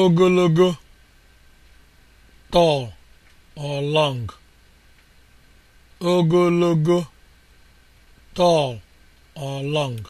ogologo tall or long ogologo tall or long